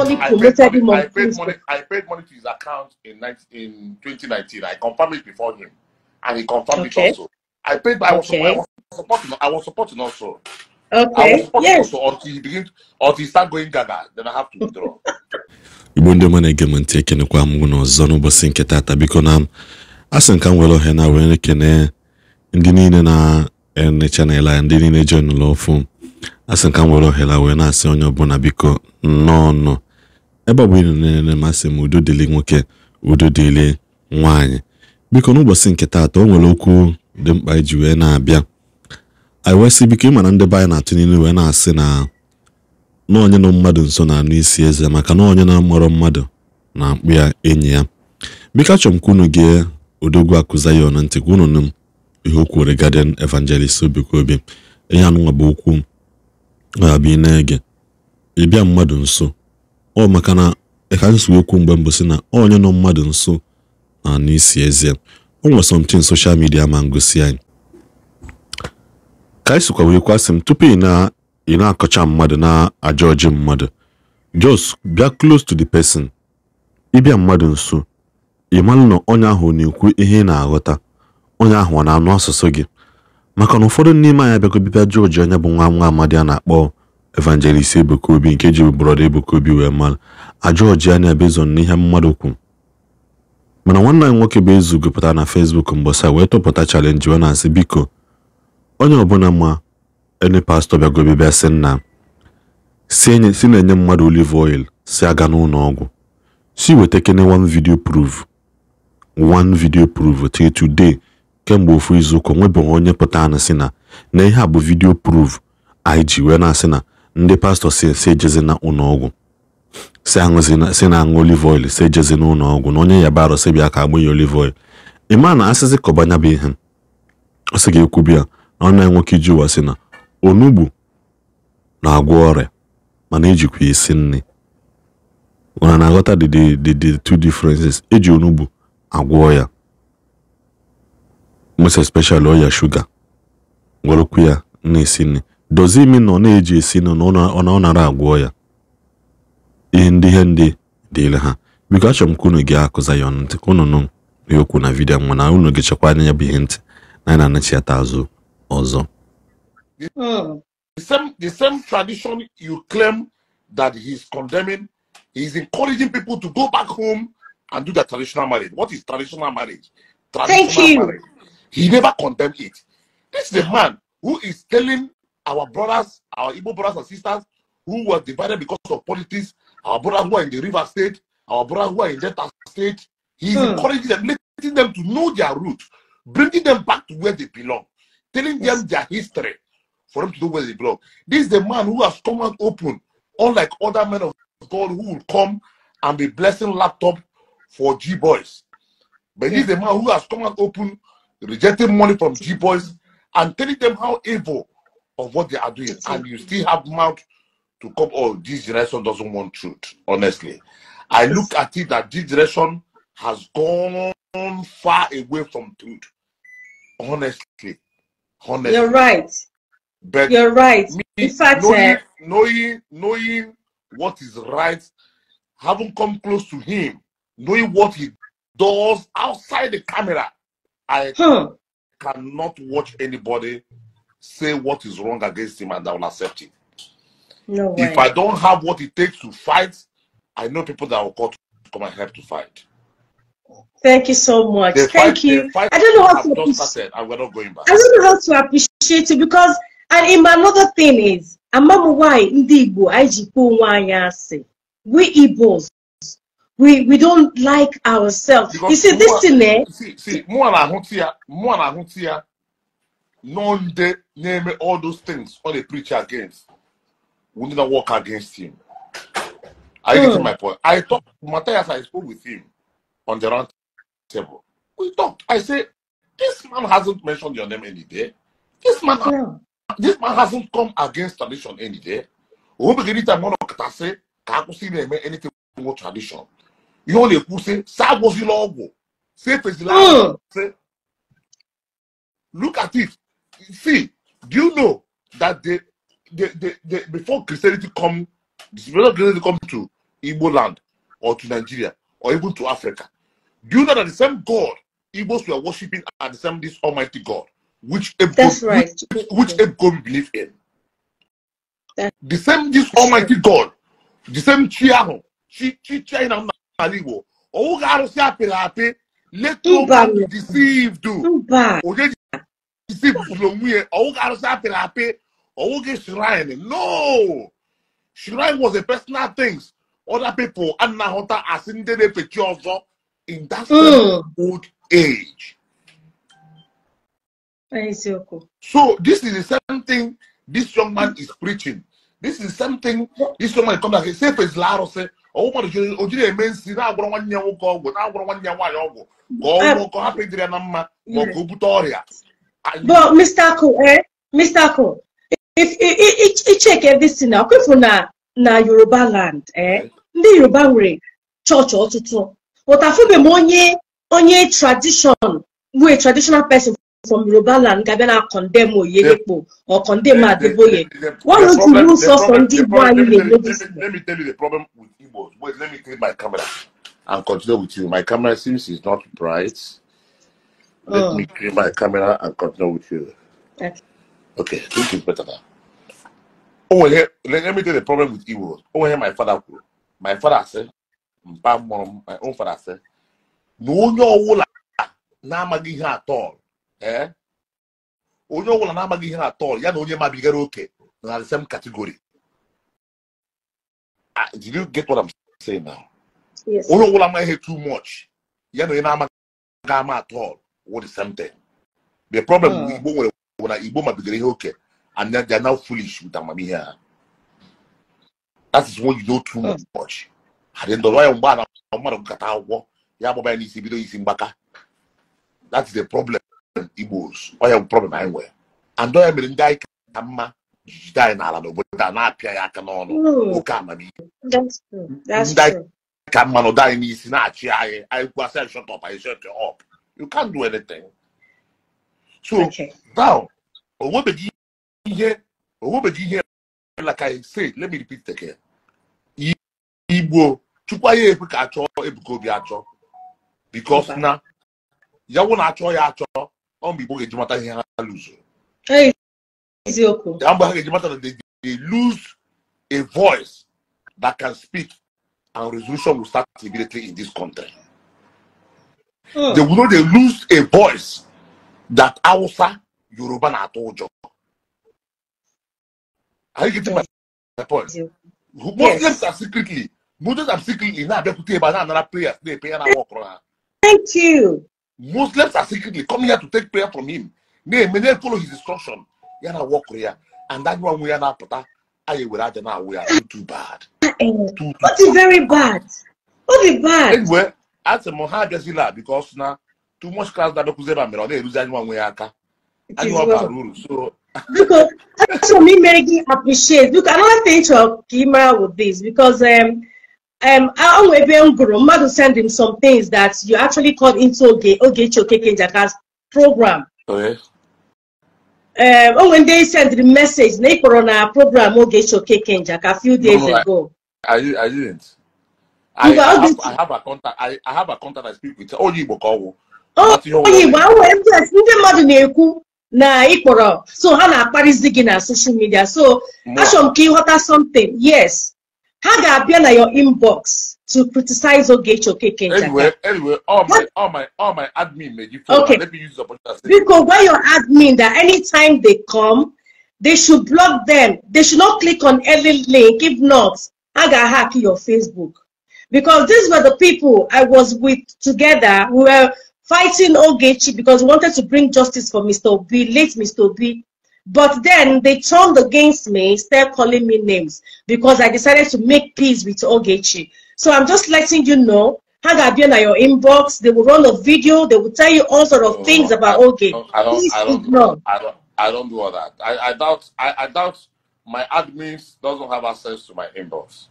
actually I, promoted him on I paid, money, I paid money to his account in, 19 in 2019. I confirmed it before him, and he confirmed okay. it also. I paid, I was, okay. I was supporting, I was supporting also. Okay. Yes. also until he begins, until he start going gaga, then I have to withdraw. igbo ndị ọma na-ege m ntị ekenekwa m unu ọzọ n'ụbọchị nke taata biko na asị nka m were ohe na were ekene ndị niile na-ene chanel a ndị niile jon lụ ofu asị nka m were ohere wee na-asị onye ọbụla biko nnọọ nọ ebe ọ bụ ịnọ na-enene masị m udo dịrị nwoke udo dịrị nwaanyị biko n'ụbọchị nke taata o nwere okwu dị mkpa iji wee na-abịa anyị wee biko ịmara ndị be anyị na-atụ niile wee na-asị na n'onye nọ mmadụ nso na-anụ isi eze maka na onye na-amụrụ mmadụ na akpụ ya enyi ya biko achọrọ m ka unu gee odogwu akụza ya ọnụ ntị ka unu nụ m ihe o kwuore Guardian Evangelist Obikobi ihe anụnwa bụ okwu na-abịa ị na-ege ịbịa mmadụ nso ọ maka na ka anyị si mgbe mbụ si na onye nọ mmadụ nso na n'isi ezie o nwere somtin soshal midia ma ngosi anyị ka anyị sikwa wee kwasị m tupu ị na-akọcha mmadụ na aja ọjị mmadụ jos bịa klos to the person ịbịa mmadụ nso ị na onye ahụ na-ekwu ihe ị na-aghọta onye ahụ ọ na-anụ asụsụ gị maka na ụfọdụ n'ime anya abịago bịbịa jọọji onye bụ nwa nwa amadi a na-akpọ Evangelist Ebuka Obi nke ji brọda Ebuka Obi wee mara ajọ ọjị anya bezon n'ihe mmadụ kwu mana nwanne anyị nwoke bụ ezu gụpụtara na Facebook mgbasa wee tụpụta chalenji wee na-asị biko onye ọbụla ma ene pastọ bịagobe bịa sị nna si na-enye mmadụ oliv oil si aga n'ụlọ ọgwụ si weta kene one video proof one video proof till today kemgbe ofu izuụka nwebeghị onye pụta anụ si na na ihe a bụ video proof anyị ji wee na-asị na ndị pastọ si ejezina ụlọọgwụ si na-aṅụ olive oil si ejezina ụlọọgwụ na onye yabarụ si bịa ka agbụ ya olive oil ịma na asịsị kọbanya bụ ihe ọ sị ga-ekwu bịa na ọnụ nwoke iji ụwa si na onugbu na-agwọ ọrịa mana ejikwa isi nri ụra na-aghọta the two differences eji onugbu agwọ ya most especially ọya shuga gwọrọkwu ya na-esi nri dozie imi na ọ na-eji esi na ọ nara agwọ ya ihe ndị ihe ndị dịịrị ha biko achọrọ m ka unu gị akụza ya ọnụ ntị ka unu nụ okwu na vidiyo nwa na unu gị chekwa anya ya bụ ihe ntị na anyị na-anachiata azụ ọzọ hmm. The same, the same tradition you claim that he is condemning, he is encouraging people to go back home and do their traditional marriage. What is traditional marriage? Traditional Thank you. Marriage. He never condemn it. This is a man who is telling our brothers, our Igbo brothers and sisters who were divided because of politics, our brothers who are in the river state, our brothers who are in Delta state. He's hmm. encouraging them, letting them to know their roots, bringing them back to where they belong, telling them their history for them to know where they belong. This is the man who has come out open, unlike other men of God who will come and be blessing laptop for G boys. But he's this is the man who has come out open, rejecting money from G boys and telling them how evil of what they are doing, and you still have mouth to come. Oh, this generation doesn't want truth. Honestly, I look at it that this generation has gone far away from truth. Honestly, honestly, you're right. But you're right. Me, In fact, knowing, eh, knowing knowing what is right, having come close to him, knowing what he does outside the camera, I huh. Hmm. cannot watch anybody say what is wrong against him and I will accept it. No way. If I don't have what it takes to fight, I know people that will call to come and help to fight. Thank you so much. They Thank fight, you. I don't know how to appreciate. I'm not going back. I don't know how to appreciate it because and in my another thing is ama m nwanyị ndị Igbo anyị ji We Igbos we we don't like ourselves. Because you see this thing eh? See, see, mụ na na de name all those things all they preach against would not work against him. Are you mm. getting hmm. my point? I talked Matthias, I spoke with him on the round table. We talked. I said, This man hasn't mentioned your name any day. This man hmm. this man hasn't come against tradition any day. say ka akwụsị na-eme anything more tradition. Ihe ọ na-ekwu sị, sa agwụzila ọgwụ, sa efezila look at it see, do you know that the the the before Christianity come, before Christianity come to Igbo land or to Nigeria or even to Africa, do you know that the same God Igbos were worshiping at the same this Almighty God, which Ebo, that's right, which, which believe in. That's the same this Almighty God, the same chi ahụ, chi chi China n'ala Igbo, ọwụghị arụsị apịrị apị, let no man deceive you. Onye ọwọ́ karụsa apịrị apị ọwụ gị shrine no shrine was a personal thing other people anaghọta asị ndị na-efe ọzọ in that hmm. old age so this is the same thing this young man is preaching this is something. this young man come back say See one one year. year. fezila arụsị ọwụ mmadụ ojiri eme nsi na-agwọrọ nwanne ya nwoke ọgwụ na-agwọrọ nwanne ya nwaanyị ọgwụ ka ọ hapụ ịdịrị ya na mma ma ọ ka o bute ọrịa but Mr. Ako, eh? Mr. Ako, if you check everything now, if na na Yoruba land, eh? Ndị Yoruba way, nwere chọọchị tutu. But afụbeghị m onye onye tradition, we traditional person from Yoruba land ga-abịa na condemn Oyedepo or condemn Adeboye. What is the rule source on ndị Igbo anyị na-emebizi? Let me tell you the problem with Igbo. Wait, let me clean my camera and continue with you. My camera seems is not bright. Let oh. me green my camera and continue with you. Okay. Okay, this is better now. Oh, here, let, let me tell you the problem with Igbo. Oh, here, my father, my father said, my own father said, na onye ọwụla na-amaghị ihe atọl ee eh? onye ọbụla na-amaghị ihe atọl ya na onye mabigara oke na the same category. Ah, did you get what I'm saying now? Yes. Onye ọbụla amaghị ihe too much ya na onye na-amaghị ama all. What is something? The problem uh. with Igbo when, when Igbo might okay, and then they're now foolish with Amami here. That is what you know too uh. much. And then the royal man, man of Katawa, Yaboba is Ibido is in Baka. That's the problem. Igbos, or your problem anywhere. And don't have been die Kama. jijide anyị n'ala I a na-apịa ya aka n'ọnụ oke amamihe ndị ka mmanụ dị anyị n'isi na-achị anyị anyị kwasị I shọtọp anyị shọtọp You can't do anything. So okay. now, like I said, let me repeat again. Ibo, Igbo, chukwaye ebuka achọ ebuka obi acho. Because na, ya wụ na acho ya acho, ọ mgbe Igbo ga-eji mata ihe ha lụzụ. Eziokwu. Ya mgbe ha ga-eji mata they lose a voice that can speak and resolution will start immediately in this country. They will not they lose a voice that Hausa, Yoruba na atụ ụjọ. Are you getting my, point? Yeah. Muslims are secretly Muslims are secretly now they put a na-anara prayers na-epe ya na awa ọkụrụ Thank you. Muslims are secretly coming here to take prayer from him. They may na-follow his instruction ya are walk here, ya and anyụ anwụ ya na-apụta anyị were aja na awụ ya too bad. Ah, eh. Too, too What is very bad? What is bad? Anyway, I m ha abịazila because now too much class that ebe a mere ọ na-eruzi anyị nwa nwe ya aka I ọ bara uru so Biko, achọrọ m imere gị appreciate Look, another thing to keep ị with this because um, um, i nwe ebe m gụrụ send him some things that you actually called into oge Ogechi Okeke Njaka's program. Oh, um, oh, when they sent the message they put on our program Ogechi Okeke Njaka a few days no, ago. I, I didn't. I, I, have, I have a contact I, I have a contact I speak with onye oh, Igbo ka ọgwụ onye Igbo a nwere ndị ndị mmadụ na-ekwu na ị i so how na Paris digging na social media so achọrọ m ka ịghọta something yes ha ga-abịa na your inbox to criticize or get your Okeke Anyway, anyway, all my, all my, all my admin made you okay. Let me use the opportunity. Because when your admin that anytime they come, they should block them. They should not click on any link. If not, I got hack your Facebook because these were the people I was with together. We were fighting Ogechi because we wanted to bring justice for Mr. Obi, late Mr. Obi. But then they turned against me, start calling me names because I decided to make peace with Ogechi. So I'm just letting you know Hang up been at your inbox, they will run a video, they will tell you all sort of no, things no, about Ogechi. I don't, Please I don't, ignore. I don't, I don't do all that. I, I doubt, I, I doubt my admins doesn't have access to my inbox.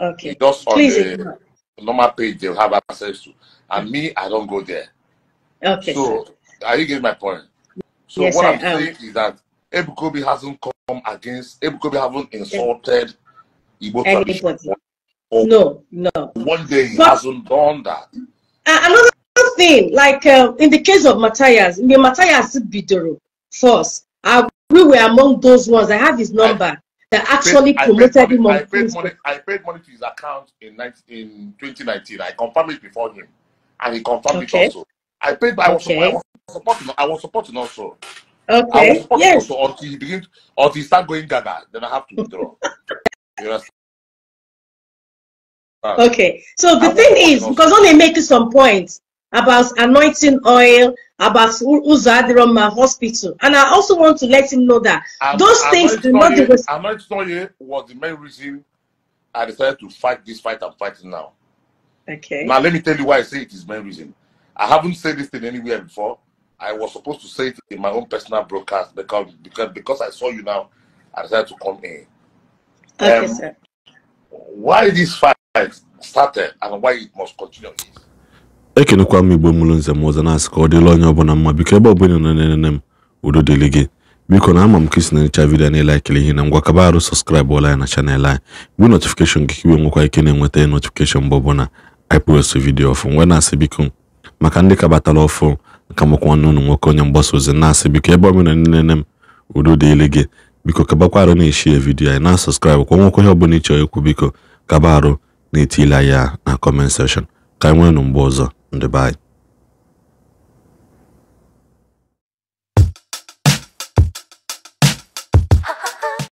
Okay. Just on Please the, normal page they'll have access to. And me, I don't go there. Okay. So are you getting my point? So yes, what I I'm saying is that Ebukobi hasn't come against Ebukobi haven't insulted Igbo tradition. No, no. One day he but, hasn't done that. Another thing, like uh, in the case of Matthias, Matthias Bidoro first. Uh, we were among those ones. I have his number that actually paid, promoted I him on I paid, money, I paid money to his account in, 19, in 2019. I confirmed it before him. And he confirmed okay. it also. I paid, I was, okay. I was supporting I was supporting also. Okay. I was supporting yes. also until he begins until he start going gaga, then I have to withdraw. you understand? Ah. Okay. So the I thing is, because only making some points about anointing oil about Uzadiroma Hospital. And I also want to let him know that I'm, those I'm things do not. to tell you what the main reason I decided to fight this fight I'm fighting now. Okay. Now, let me tell you why I say it is main reason. I haven't said this thing anywhere before. I was supposed to say it in my own personal broadcast because because, because I saw you now, I decided to come in. Okay, um, sir. Why this fight started and why it must continue is ekenekwa m igbo mụrụ nze m ọzọ na-asị ka ọ dịla onye ọbụla mma biko ebe ọbụla na nne m udo dịrị gị biko na ama m ka isi na-enyecha vidiyo na ịlaikiri ihe na ngwa kaba arụ sọskraịbụ ọla ya na chanel anyị bụ notifikeshọn gị ka iwe nwekwa ike na-enweta notifikeshọn mgbe ọbụla ipost vidio ọfụ nwee na-asị biko maka ndị kabatara ọfụ nka makwa nne ụnụ nwoke onye mgbasa ozi na-asị biko ebe ọbụla na nene m udo dịrị gị biko kabakwa arụ na-eshi ya vidiyo anyị na sọskraịbụ kwa nwekwa ihe ọbụla ịchọrọ ikwu biko kaba arụ na etila ya na kọment sekshọn ka anyị nwee nụ mgbe ọzọ Dubai.